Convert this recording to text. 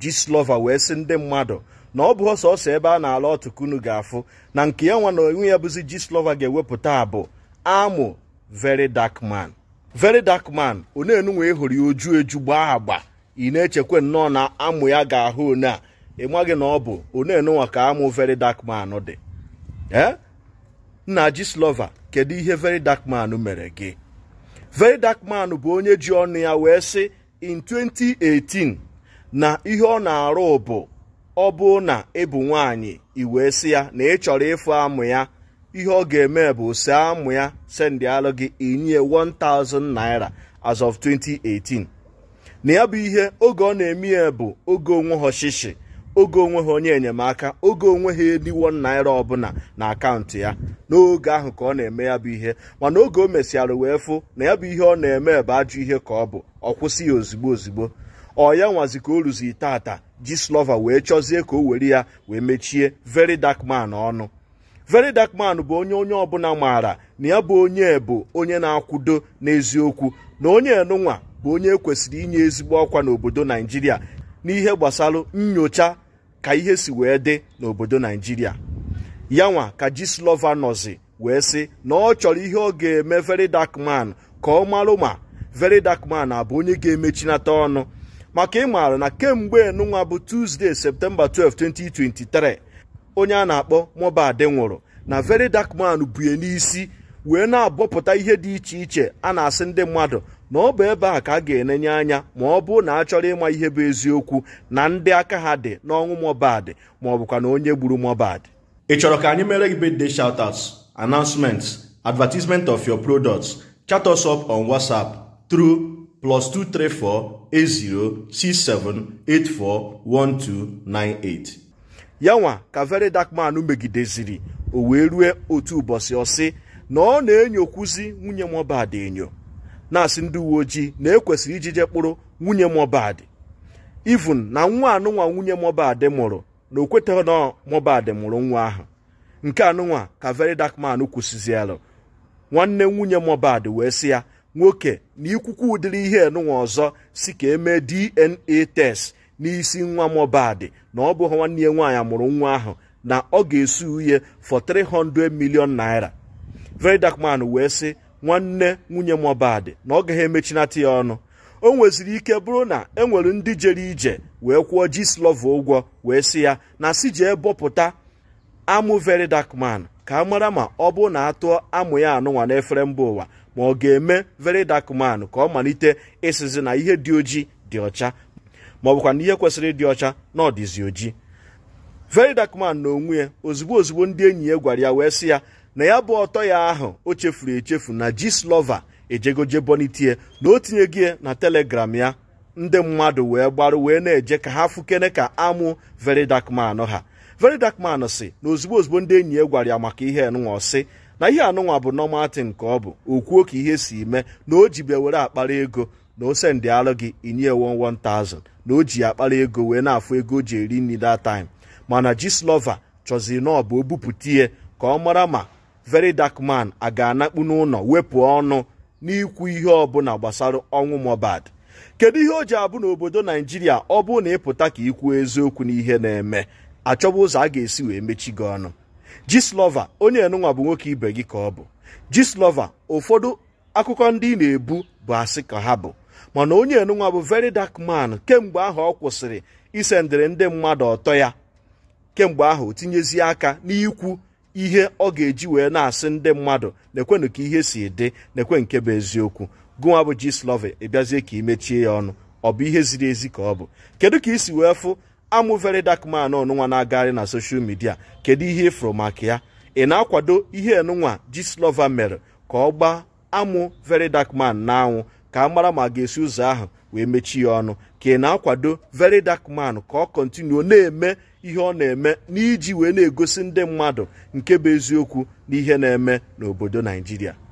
Gistlover wee sị ndị mmadụ na ọ bụ sọsọ ebe a na-ala ọtụkunu ga-afụ na nke ya nwa na onwe ya bụzi slova ga-ewepụta bụ amụ veri dakman man dakman dark man e hụrụ ya oju eju gbaa agba ị na-echekwa nnọọ na amụ ya ga-ahụ one a ị maghị na ọ bụ one ka amụ veri dakman man dị ee nna Gistlover kedu ihe veri dakman man mere gị veri dakman man bụ onye ji ọnụ ya wee sị in 2018 na ihe ọ na-arụ bụ ọ bụ na ịbụ e nwaanyị iwee sị ya na ị chọrọ ịfụ amụ ya ihe ọ ga-eme bụ si amụ ya sendị alụ gị inye 1000 naira as of 2018 na ya bụ ihe oge ọ na-eme ya bụ oge onwe ha ọchịchị oge onwe ha onye enyemaka oge onwe ha 1 naira ọbụla na akaụntụ ya n'oge ahụ ka ọ na-eme ya bụ ihe mana oge o mesịarị wee fụ na ya bụ ihe ọ na-eme bụ ajụ ihe ka ọ bụ ọ kwụsị ya ozigbo ozigbo ọ ya nwazi ka o ruzi tata jislova wee chọzie ka o were ya wee mechie very dark ọnụ veri dark bụ onye onye ọbụla maara na ya bụ onye bụ onye na-akwudo n'eziokwu na onye enunwa bụ onye ekwesịrị inye ezigbo ọkwa n'obodo naijiria n'ihe gbasara nyocha ka ihe si wee dị n'obodo naijiria yanwa ka jislova nọzi wee sị na ọ chọrọ ihe ọ ga-eme very dark ka ọ marụ ma veri dark abụ onye ga-emechinata ọnụ maka ịmaara na kemgbe nụnwa bụ Tuesday Septemba 12 2023 onye a na-akpọ Mohbad nwụrụ na Very Dark bue n'isi wee na-abọpụta ihe dị iche iche a na-asị ndị mmadụ na ọ bụ ebe a ka a ga-enenye anya ma ọ bụ na a chọrọ ịma ihe bụ eziokwu na ndị aka ha dị n'ọnwụ Mohbad ma ọ bụkwa na onye gburu Mohbad ị chọrọ ka anyị mere gị birthday shoutouts announcements advertisement of your products chat us up on WhatsApp tru. plus 2348067841298 yanwa ka very dark man megideziri o wee rue otu ụbọchị ọsị na ọ na-enyokwuzi enyo nwunye Mohbad enyo na-asị ndị uwe ojii na ekwesịrị iji kpụrụ nwunye Mohbad even na nwa anụnwa nwunye Mohbad mụrụ na o na Mohbad mụrụ nwa ahụ nke anụnwa ka very dark man kwụsịzielụ nwanne nwunye Mohbad wee sị ya nwoke na ikwukwu ụdịrị ihe enunwa ọzọ si ka emee DNA test n'isi nwa Mohbad na ọ bụghị nwanne ya nwaanyị amụrụ nwa ahụ na ọ ga-esu uhe for 300 million naira Verydarkman wee sị nwanne nwunye Mohbad na ọ gaghị emechinata ya ọnụ o nweziri ike bụrụ na e nwere ndị jere ije wee kwụọ Gistlovo ụgwọ wee sị ya na si jee bọpụta amụ verydakman ka a mara ma ọ bụ na atụọ amụ ya anụnwa n'efere mba ụwa ma ọ ga-eme very dark man ka ọ malite ịsịzi na ihe dị ojii dị ọcha ma na ihe kwesịrị ịdị ọcha na ọdịzi oji. ojii very dark man na onwe ya ozugbo ozugbo ndị enyi ya gwara ya wee sị ya na ya bụ ọtọ ya ahụ o chefuru echefu na Gslova ejegoje bonitie na o tinyego ya na telegram ya ndị mmadụ wee gbarụ wee na-eje ka ha fukene ka amụ very dark man ha very dark man si na ozugbo ozugbo ndị enyi ya gwara ya maka ihe enụnwa si na ihe anụnwa bụ normal nke ka ọ bụ o kwuo ka ihe si mee na o jibe were akpara ego na o ndị alụ gị inye 11000 na o ji akpara ego wee na-afụ ego o ji eri nri that time mana Gistlover chọziri na ọ bụ o ihe ka ọ mara ma very dakman man a ga-anakpu n'ụlọ wepụ ọnụ n'ikwu ihe ọbụla gbasara ọnwụ Mohbad kedu ihe o ji abụ n'obodo Naijiria ọ bụrụ na ịpụta ka ikwu eziokwu n'ihe na-eme achọba ụzọ a ga-esi wee mechi gị ọnụ Gistlover onye enunwa bụ nwoke ibe gị ka ọ bụ Gistlover ụfọdụ akụkọ ndị ị na-ebu bụ asị ka ha bụ mana onye enunwa bụ very dark man kemgbe ahụ ọ kwụsịrị isendịrị ndị mmadụ ọtọ ya kemgbe ahụ otinyezi tinyezie aka n'ikwu ihe ọ ga-eji wee na-asị ndị mmadụ nekwenụ ka ihe si dị naekwe nke bụ eziokwu gụnwa bụ Gistlover ị bịazie ka imechie ya ọnụ ọ bụ ihe ziri ezi ka ọ bụ kedu ka isi wee fụ amụ dark dakman ọnụnwa na-agagharị na soshal midia kedu ihe ịfụrụ maka ya ị na-akwado ihe enụnwa Gistlover mere ka ọ gbaa amụ very dark man na-anwụ ka a mara ma ga-esi ụzọ ahụ wee mechie ya ọnụ ka ị na-akwado very dark man ka ọ kọntinuo na-eme ihe ọ na-eme n'iji wee na-egosi ndị mmadụ nke bụ eziokwu n'ihe na-eme n'obodo Naijiria